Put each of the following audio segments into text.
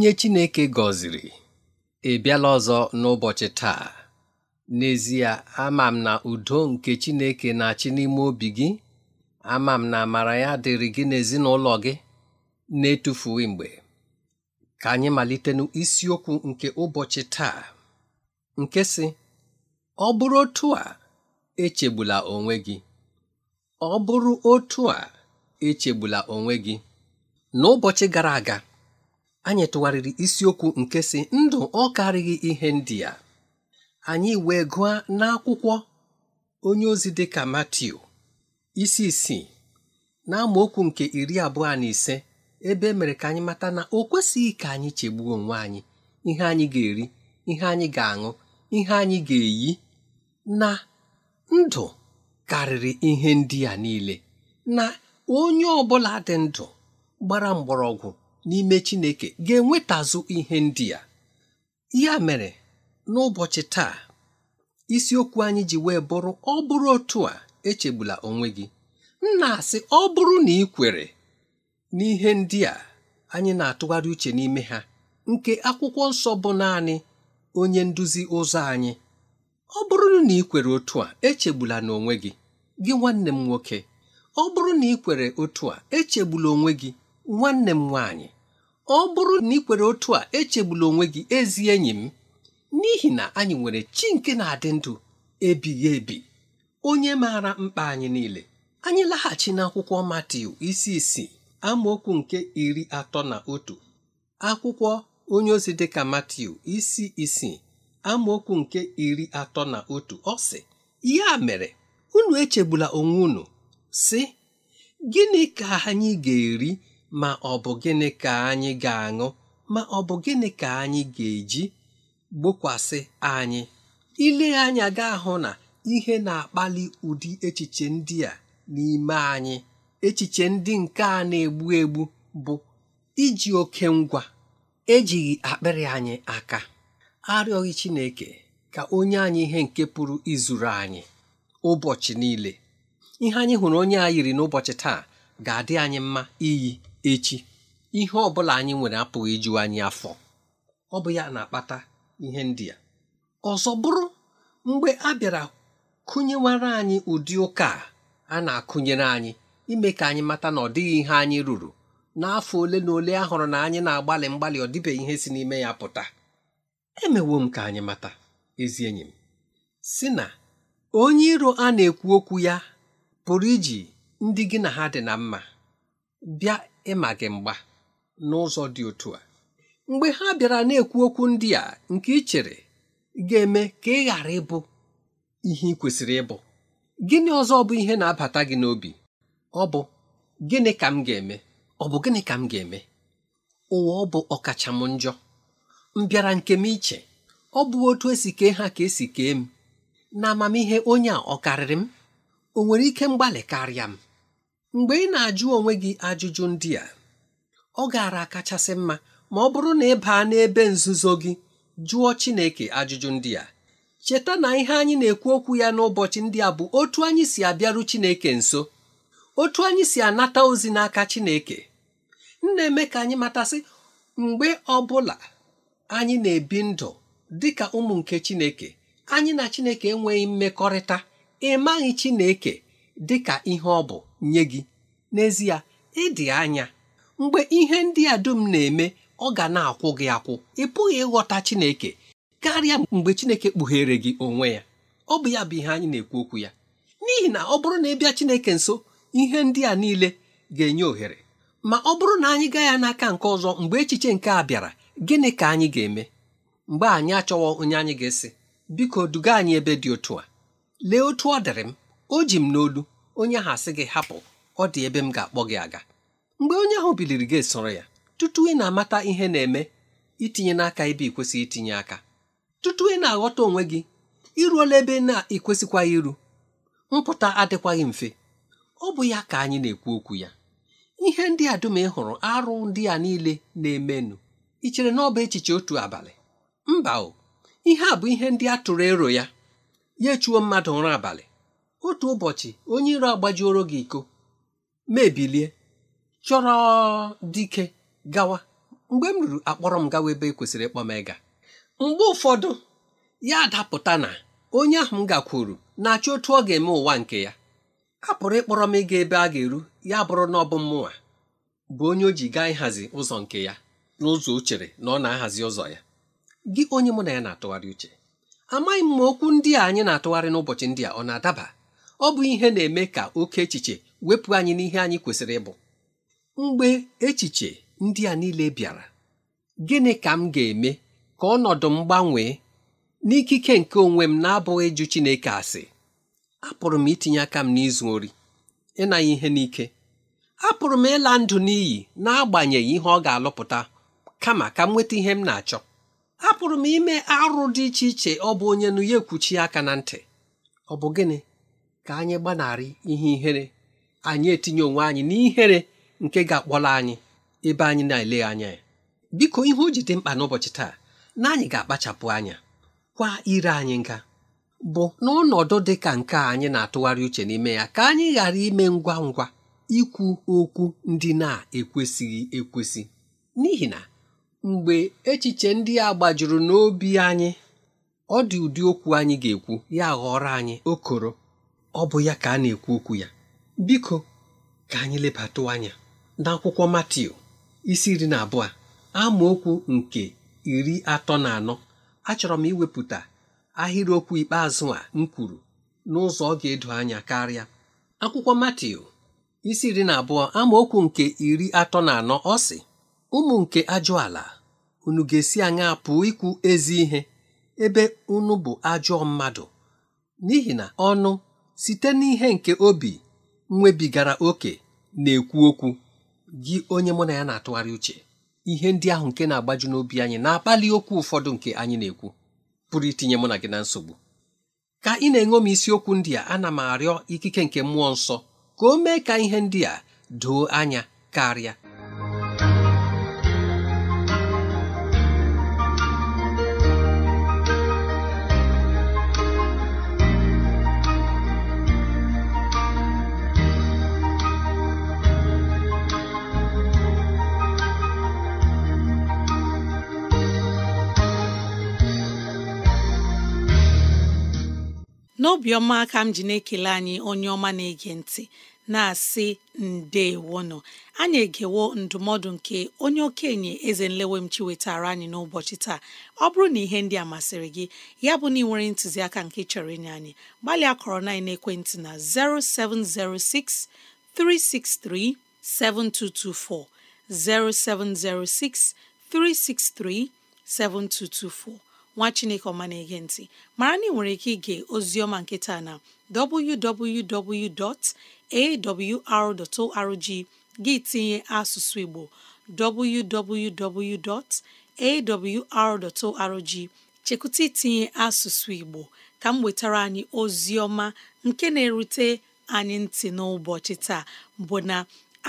onye Chineke gọziri ị ọzọ n'ụbọchị taa n'ezie ama m na udo nke Chineke na-achị n'ime obi gị ama m na amara ya dịrị gị n'ezinụlọ gị na-etufughị mgbe ka anyị malite n'isiokwu nke ụbọchị taa nke si ọ bụrụ otu a echegbula onwe gị ọ bụrụ otu a echegbula onwe gị n'ụbọchị gara aga anyị tụgharịrị isiokwu nke si ndụ ọ karịghị ihe ndị a anyị wee gụọ n'akwụkwọ onye ozi dị ka Matiu isi isii na amaokwu nke iri abụọ na ise ebe e mere ka anyị mata na o kwesịghị ka anyị chegbuo onwe anyị ihe anyị ga-eri ihe anyị ga-aṅụ ihe anyị ga-eyi na ndụ karịrị ihe ndị a niile na onye ọ bụla dị ndụ gbara mgbọrọgwụ n'ime Chineke ga-enwetazụ ihe ndị a ya mere n'ụbọchị taa isiokwu anyị ji wee bụrụ ọ bụrụ otu a echegbula onwe gị nna asị ọ bụrụ na ị kwere n'ihe ndị a anyị na-atụgharị uche n'ime ha nke akwụkwọ nsọ bụ naanị onye nduzi ụzọ anyị ọ bụrụ na ị kwere otu a echegbula n'onwe gị gị nwanne m nwoke ọ bụrụ na ị kwere otu a echegbula onwe gị nwanne m nwaanyị ọ bụrụ na ị kwere otu a echegbula onwe gị ezi enyi m n'ihi na anyị nwere chi nke na-adị ndụ ebighị ebi onye maara mkpa anyị niile anyị laghachi n'akwụkwọ Matiu isi isii amaokwu nke iri atọ na otu akwụkwọ onye ozi dịka Matiu isi isii amaokwu nke iri atọ na otu ọ sị ya mere unu echegbula onwe unu sị gịnị ka anyị ga-eri ma ọ bụ gịnị ka anyị ga-aṅụ ma ọ bụ gịnị ka anyị ga-eji gbokwasị anyị ile anya ga-ahụ na ihe na-akpali ụdị echiche ndị a n'ime anyị echiche ndị nke a na-egbu egbu bụ iji oke ngwa ejighị akpịrị anyị aka arịọghị Chineke ka onye anyị ihe nke pụrụ izuru anyị ụbọchị niile ihe anyị hụrụ onye a yiri n'ụbọchị taa ga-adị anyị mma iyi echi ihe ọbụla anyị nwere apụghị iju anyị afọ ọ bụ ya na-akpata ihe ndị a ọzọ bụrụ mgbe a bịara kụnyewara anyị ụdị ụka a na-akụnyere anyị ime ka anyị mata na ọ dịghị ihe anyị ruru n'afọ ole na ole a hụrụ na anyị na-agbalị mgbalị ọ ihe si n'ime ya pụta emewo m ka anyị mata ezi enyi m si na onye iro a na-ekwu okwu ya pụrụ iji ndị gị na ha dị na mma bịa ịma gị mgba n'ụzọ dị otu a mgbe ha bịara na-ekwu okwu ndị a nke ị chere ga-eme ka ị ghara ịbụ ihe ị kwesịrị ịbụ gịnị ọzọ bụ ihe na-abata gị n'obi ọ bụ gịnị ka m ga-eme ọ bụ gịnị ka m ga-eme ụwa ọ bụ ọkacha m njọ m bịara nke m iche ọ bụ otu esi kee ha ka esi kee m na amamihe onye a ọ karịrị m o nwere ike mgbalị karịa m mgbe ị na-ajụ onwe gị ajụjụ ndị a ọ gaara kachasị mma ma ọ bụrụ na ị baa n'ebe nzuzo gị jụọ Chineke ajụjụ ndị a cheta na ihe anyị na-ekwu okwu ya n'ụbọchị ndị a bụ otu anyị si abịaru Chineke nso otu anyị si anata ozi n'aka Chineke na-eme ka anyị matasị mgbe ọ bụla anyị na-ebi ndụ dị ka ụmụ nke Chineke anyị na Chineke enweghị mmekọrịta ịmaghị Chineke dị ka ihe ọ bụ nye gị n'ezie ịdị anya mgbe ihe ndị a dum na-eme ọ ga na-akwụ gị akwụ ị pụghị ịghọta Chineke karịa mgbe Chineke kpughere gị onwe ya ọ bụ ya bụ ihe anyị na-ekwu okwu ya n'ihi na ọ bụrụ na ị bịa Chineke nso ihe ndị a niile ga-enye ohere ma ọ bụrụ na anyị gaa ya n'aka nke ọzọ mgbe echiche nke a bịara gịnị ka anyị ga-eme mgbe anyị achọwọ onye anyị ga-esi biko duga anyị ebe dị otu a lee otu ọ dịrị m o ji m n'olu onye ahụ asị gị hapụ ọ dị ebe m ga-akpọ gị aga mgbe onye ahụ biliri gị soro ya tutu ị na-amata ihe na-eme itinye n'aka ebe ị kwesịghị itinye aka tutu ị na-aghọta onwe gị iruola ebe na ekwesịkwaghị iru mpụta adịkwaghị mfe ọ bụ ya ka anyị na-ekwu okwu ya ihe ndị a dum ị hụrụ arụ ndị a niile na-emenụ ichere chere na ọ bụ echiche otu abalị mba o ihe a bụ ihe ndị a tụrụ ero ya ya echuo mmadụ ụra abalị otu ụbọchị onye iro agbajuoro gị iko mebilie chọrọ dike gawa mgbe m ruru akpọrọ m gawa ebe e kwesịrị ịkpọ m ịga mgbe ụfọdụ ya adapụta na onye ahụ m gakwuru na-achọ otu ọ ga-eme ụwa nke ya a pụrụ ịkpọrọ m ịga ebe a ga-eru ya bụrụ na ọ bụ mmụnwa bụ onye o ji gaa ịhazi ụzọ nke ya n'ụzọ o na ọ na-ahazi ụzọ ya gị onye mụ na ya na-atụgharị uche amaghị m ma okwu ndị a anyị na-atụgharị n'ụbọchị ndị a ọ na-adaba ọ bụ ihe na-eme ka oke echiche wepụ anyị n'ihe anyị kwesịrị ịbụ mgbe echiche ndị a niile bịara gịnị ka m ga-eme ka ọnọdụ m gbanwee n'ikike nke onwe m na-abụghị jụ Chineke asị apụrụ m itinye aka m n'izu ori ịnanya ihe n'ike apụrụ m ịla ndụ n'iyi n'agbanyeghị ihe ọ ga-alụpụta kama ka m nweta ihe m na-achọ apụrụ m ime arụ dị iche iche ọ bụ onye nụ ya ekwuchi aka na ntị ọ bụ gịnị ka anyị gbanarị ihe ihere anyị etinye onwe anyị n'ihere nke ga akpọrọ anyị ebe anyị na-ele anya ya biko ihe o ji dị mkpa n'ụbọchị taa na anyị ga-akpachapụ anya kwa ire anyị nga bụ n'ọnọdụ dị ka nke anyị na-atụgharị uche n'ime ya ka anyị ghara ime ngwa ngwa ikwu okwu ndị na-ekwesịghị ekwesị n'ihi na mgbe echiche ndị a gbajuru n'obi anyị ọ dị ụdị okwu anyị ga-ekwu ya ghọrọ anyị okoro ọ bụ ya ka a na-ekwu okwu ya biko ka anyị lebatụ anya n'akwụkwọ Matiu isi iri na abụọ amaokwu nke iri atọ na anọ achọrọ m iwepụta ahịrịokwu ikpeazụ a m kwuru n'ụzọ ọ ga-edo anya karịa akwụkwọ Matiu isi iri na abụọ amaokwu nke iri atọ na anọ ọ sị ụmụ nke ajọ ala unu ga-esi anya pụọ ikwu ezi ihe ebe unu bụ ajọ mmadụ n'ihi na ọnụ site n'ihe nke obi nwebigara oke na-ekwu okwu gị onye mụ na ya na-atụgharị uche ihe ndị ahụ nke na-agbaju n'obi anyị na-akpali okwu ụfọdụ nke anyị na-ekwu pụrụ itinye mụ na gị na nsogbu ka ị na-enwe m isiokwu ndị a ana m arịọ ikike nke mmụọ nsọ ka o mee ka ihe ndị a doo anya karịa n'obiọma ka m ji na-ekele anyị onye ọma na-ege ntị na-asị ndeewono anyị egewo ndụmọdụ nke onye okenye eze nlewem chi wetara anyị n'ụbọchị taa ọ bụrụ na ihe ndị a masịrị gị ya bụ na ị nwere ntụziaka nke chọrọ inye anyị gbalịa kọrọ na ekwentị na 0706 363 7224 0706 363 7224 nwa chineke ọma na-ege ntị mara na ị nwere ike ige oziọma nkịta na www.awr.org gị tinye asụsụ igbo www.awr.org chekwụta itinye asụsụ igbo ka m wetara anyị oziọma nke na-erute anyị ntị n'ụbọchị taa bụ na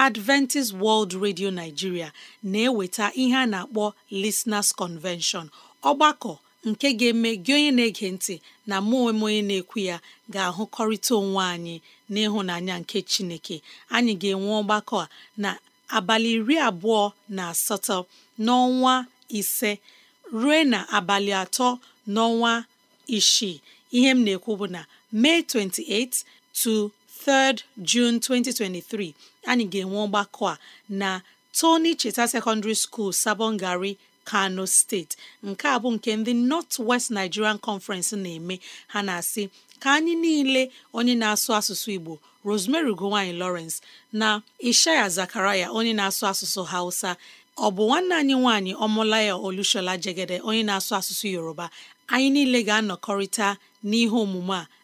Adventist World Radio Nigeria na-eweta ihe a na-akpọ Listeners Convention ọgbakọ nke ga-eme gị onye na-ege ntị na mụ onwe onye na-ekwu ya ga-ahụkọrịta onwe anyị n'ịhụnanya nke Chineke anyị ga-enwe ọgbakọ a na abalị iri abụọ na asatọ n'ọnwa ise ruo na abalị atọ n'ọnwa isii ihe m na-ekwu bụ na May 28 to 3rd 2023 anyị ga-enwe ọgbakọ a na Tony Cheta Secondary School Sabongari. kano steeti nke a bụ nke ndị nọt west nigerian conference na-eme ha na-asị ka anyị niile onye na-asụ asụsụ igbo rosemary ugowanyi lawrence na ishaya zakaraya onye na-asụ asụsụ hausa ọ bụ nwanne anyị nwanyị ọmụlaya olushola jegede onye na-asụ asụsụ yoruba anyị niile ga-anọkọrịta n'ihe omume a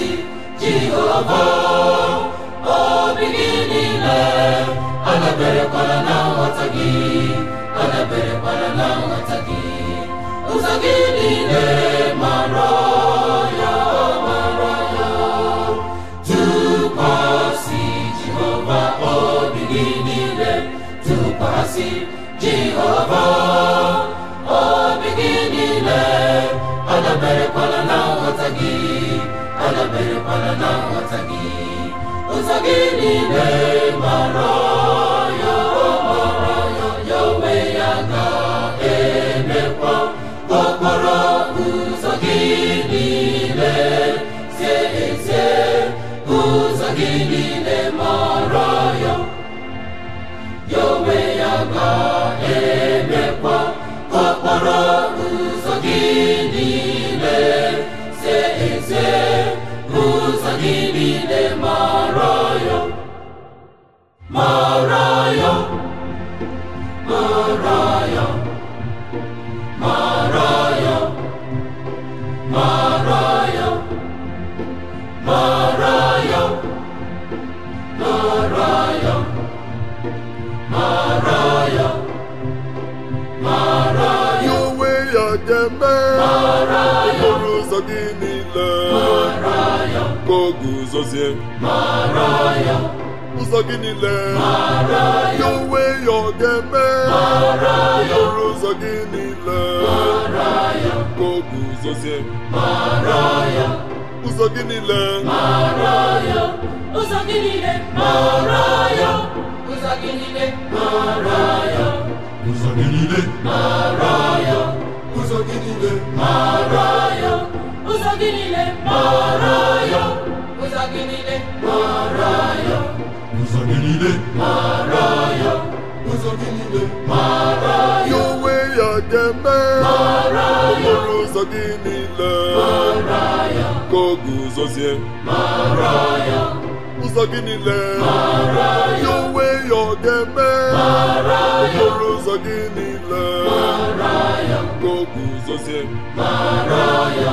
isi jehova obi gị niile adaberekwala na nghọta gị adaberekwala na nghọta gị ụzọ gị niile mara ya mara ya tụkwasị jehova obi gị niile tụkwasị jehova obi gị niile adaberekwala na nghọta gị kwadebere na nghọta gị ụzọ gị niile mara ya mara ya ya onwe ya ga-emekwa okporo ụzọ gị niile sie ezie ụzọ gị niile sozie ụzọ gị niile ya onwe ya ọ ga-eme okporo ụzọ gị niile ka o guzozie ụzọ gị niile ụzọ gị niile ụzọ gị niile ụzọ gị niile ụzọ gị niile ụzọ gị niile ụzọ gị niile mara ya ụzọ gị niile mara ya ụzọ gị niile mara ya onwe ya ga-eme mara ya ụzọ gị niile mara ya ka ọ guzozie mara ya ụzọ gị niile mara ya onwe ya ọ ga-eme mara gị niile mara ya ka ọ guzozie mara ya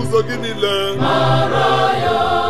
ụzọ gị niile mara ya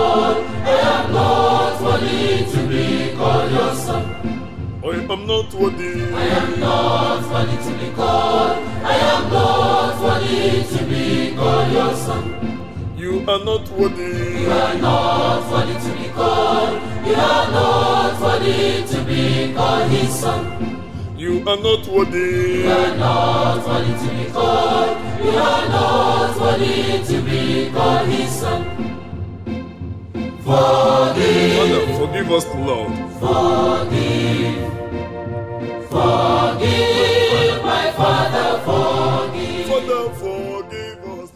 I am not worthy to be called your son. I am not worthy. I am not worthy to be called. I am not worthy to be called your son. You are not worthy. You are not worthy to be called. You are not worthy to be called his son. You are not worthy. You are not worthy to be called. You are not worthy to be called his son. Forgive. Father, forgive us, Lord. Forgive. Forgive, my Father, forgive. Father, forgive us.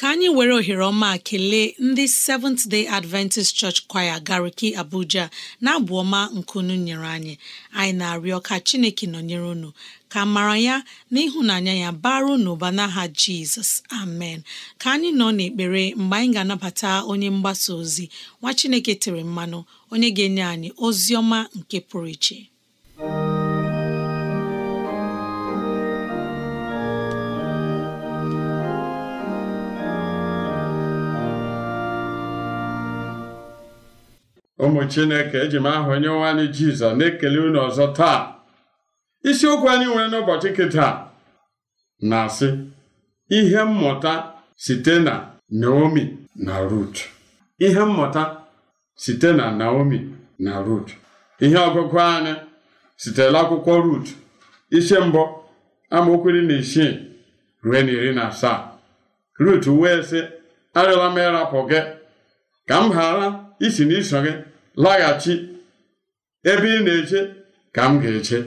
Ka anyị were ohere ọma kelee ndị Seventh Day Adventist Church Choir Gariki Abuja na-abụ ọma nkunu nyere anyị anyị na-arịọ ka Chineke nọnyere unu ka mara ya na ịhụnanya ya baru n'ụba n'aha jizọs amen ka anyị nọ n'ekpere mgbe anyị ga-anabata onye mgbasa ozi nwa chineke tere mmanụ onye ga-enye anyị ozi ọma nke pụrụ iche ụmụ chineke eji m aha onye nwe jizọs na-ekele unu ọzọ taa isiokwu anyị nwere n'ụbọchị kịta na-asị ihe mmụta site na Naomi na Rut ihe mmụta site na Naomi na Rut ihe ọgụgụ anyị sitere akwụkwọ Rut ise mbụ amaokwu na isii ruo na iri na asaa Rut wee sị arịọla m ịrapụ gị ka m ghara isi n'iso gị laghachi ebe ị na-eche ka m ga-eche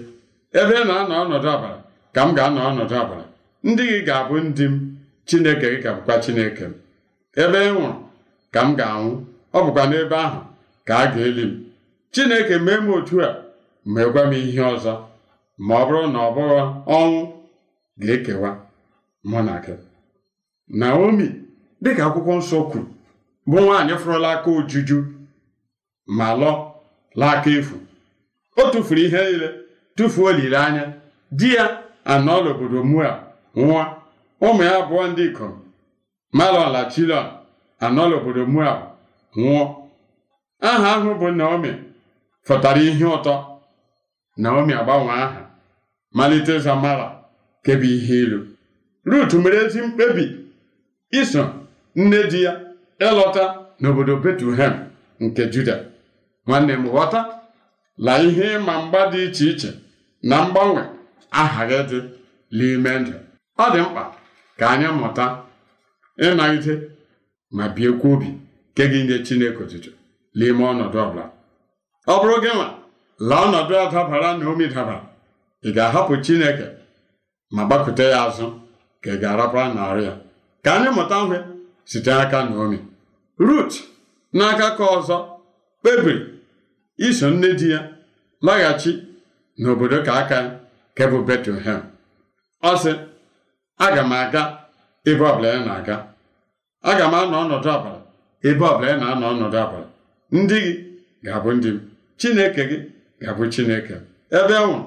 ebe na-anọ ọnọdụ ọbara ka m ga-anọ ọnọdụ ọbara ndị gị ga-abụ ndị m chineke gị ga-abụkwa chineke m ebe ị nwụrụ ka m ga-anwụ ọ bụkwa n'ebe ahụ ka a ga-eli m chineke mee m otu a meekwa m ihe ọzọ ma ọ bụrụ na ọ bụghị ọnwụ ga-ekewa mụ na gị naomi dịka akwụkwọ nsọ kwuru bụ nwaanyị fụrụla aka ojuju ma lọ laa aka efu o tụfuru ihe niile tụfuo olileanya di ya anọọla obodo mua nwa ụmụ ya abụọ ndị ikom malon na chilon anọọla obodo mua nwụọ aha ahụ bụ naomi fọtara ihe ụtọ naomi agbanwe aha malite zamara kebe ihe ilu rut mere ezi mkpebi iso nne di ya ịlọta n'obodo betuhem nke juda nwanne m ghọta la ihe ịma mgba dị iche iche na mgbanwe aha gị dị n'ime ndụ ọ dị mkpa ka anyị mụta ịnagide ma biekwa obi nke gị nye Chineke otutu n'ime ọnọdụ ọbụla ọ bụrụ gị nwa la ọnọdụ a dabara na omi dabara ị ga-ahapụ Chineke ma gbakwute ya azụ ka ị ga-arapara narị ya ka anyị mụta nwe site na omi. Rut n'aka ka ọzọ kpebiri iso nne di ya laghachi n'obodo ka aka nke bụ Betlehem ọ sị aga m aga ebe ọbụla ya na-aga aga m anọ ọnọdụ abalị ebe ọbụla ya na-anọ ọnọdụ abalị ndị gị ga-abụ ndị m Chineke gị ga-abụ Chineke ebe ọnwụ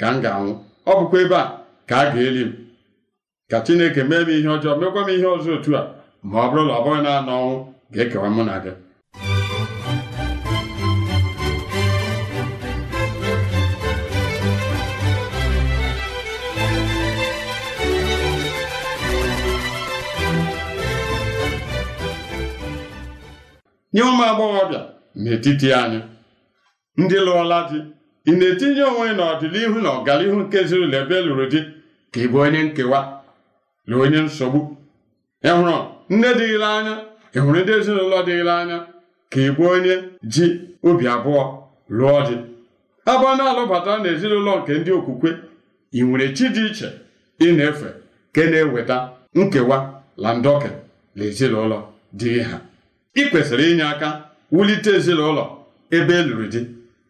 ka m ga-anwụ ọ bụkwa ebe a ka a ga-eli m ka Chineke mee m ihe ọjọọ mekwa m ihe ọzọ otu a ma ọ bụrụ na ọ bụghị na anọ ọnwụ ga-ekewa mụ na gị nye ụmụ agbọghọbịa n'etiti anyị ndị lụọla di ị na-etinye onwe n'ọdịnihu na ọganihu nke ezinụlọ ebe e lụrụ di ka ị bụ onye nkewa na onye nsogbu ịhụrụ nne dịghịla anya ịhụrụ ndị ezinụlọ dịghịla anya ka ị bụ onye ji obi abụọ lụọ di abụọ na-alụbatara na ezinụlọ nke ndị okwukwe ị nwere chi dị iche ị na-efe nke na-eweta nkewa na ndọke na ezinụlọ dịghị ha ị kwesịrị inye aka wulite ezinụlọ ebe e lụrụ di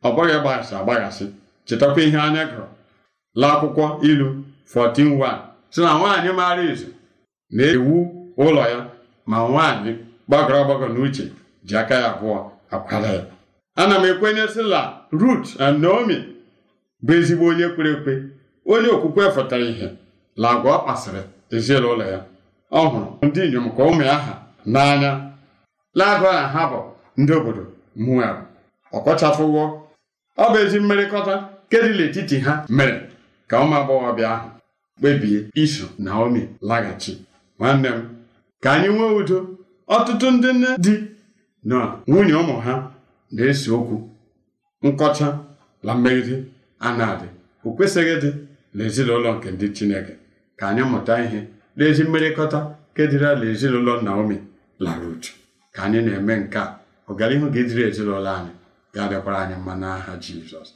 ọ bụghị gbaghasị agbaghasị chetakwa ihe anya gụrụ la akwụkwọ ilu 14:1 sị na nwaanyị maara izu na-ewu ụlọ ya ma nwaanyị gbagọrọ agbagọ n'uche ji aka ya abụọ akwara ya ana m ekwenye sị la Rut and Naomi bụ ezigbo onye kwere ekwe onye okwukwe fụtara ihe la agwa ọ kpasịrị ezinụlọ ya ọ hụrụ ndị inyom ka ụmụ ya n'anya lagụ a ha bụ ndị obodo mụnwere ọkọchafụwo ọ bụ ezi mmerịkọta kedịla etiti ha mere ka ụmụ agbọghọbịa ahụ kpebie iso omi laghachi nwanne m ka anyị nwee udo ọtụtụ ndị nne di na nwunye ụmụ ha na-ese okwu nkọcha na mmegide a na-adị o kwesịghị n'ezinụlọ nke ndị Chineke ka anyị mụta ihe n'ezi mmerịkọta kedịrịla ezinụlọ Naomi lara uju ka anyị na-eme nke a ọganihu ga-ediri ezinụlọ anyị ga-abịakwara anyị mma n'aha Jizọs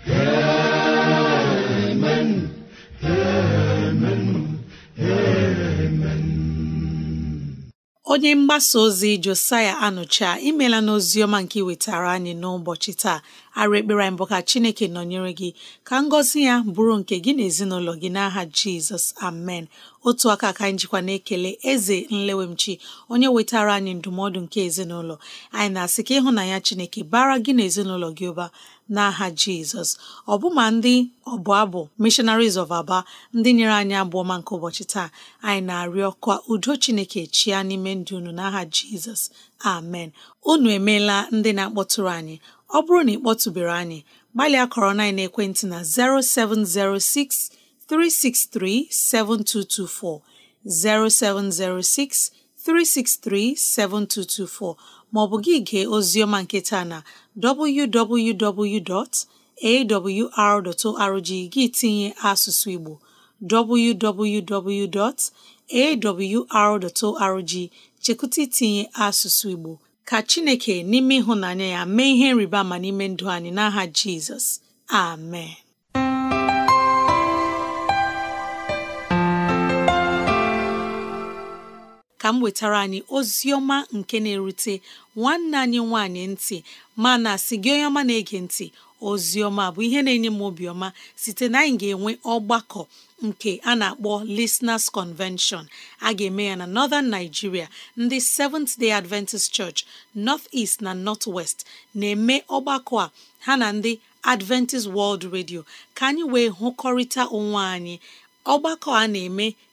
onye mgbasa ozi Josiah Anụcha imela n'ozi ọma nke iwetara anyị n'ụbọchị taa arụ ekpere bụ ka chineke nọnyere gị ka ngọzi ya bụrụ nke gị na ezinụlọ gị n'aha jizọs amen otu aka ka anyị jikwa na-ekele eze nlewemchi onye wetara anyị ndụmọdụ nke ezinụlọ anyị na-asị ka ịhụnanya chineke bara gị na ezinụlọ gị ụba n'aha jizọs ọbụma ndị ọbụ abụ missionaries of aba ndị nyere anyị abụọ nke ụbọchị taa anyị na-arịọ ka udo chineke chia n'ime ndụ unu n'aha jizọs amen unu emeela ndị na-akpọtụrụ anyị ọ bụrụ na ị kpọtụbere anyị gbalịa kọrọ na ekwentị na 0706 363 7224 0706 363 7224 maọbụ gị gee oziọma nke taa na www.awr.org gị tinye asụsụ Igbo www.awr.org chekụta itinye asụsụ Igbo ka Chineke n'ime ịhụnanya ya mee ihe nriba ma n'ime ndụ anyị n'aha Jizọs amen ka m wetara anyị ozi ọma nke na-erute nwanne anyị nwanyị ntị mana si gị onye ọma na-ege ntị ozi ọma bụ ihe na-enye m obiọma site na anyị ga-enwe ọgbakọ nke a na-akpọ Listeners Convention a ga-eme ya na Northern Nigeria ndị Seventh Day Adventist Church North East na North West na-eme ọgbakọ a ha na ndị Adventist World Radio ka anyị wee hụkọrịta onwe anyị ọgbakọ a na-eme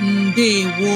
ndewo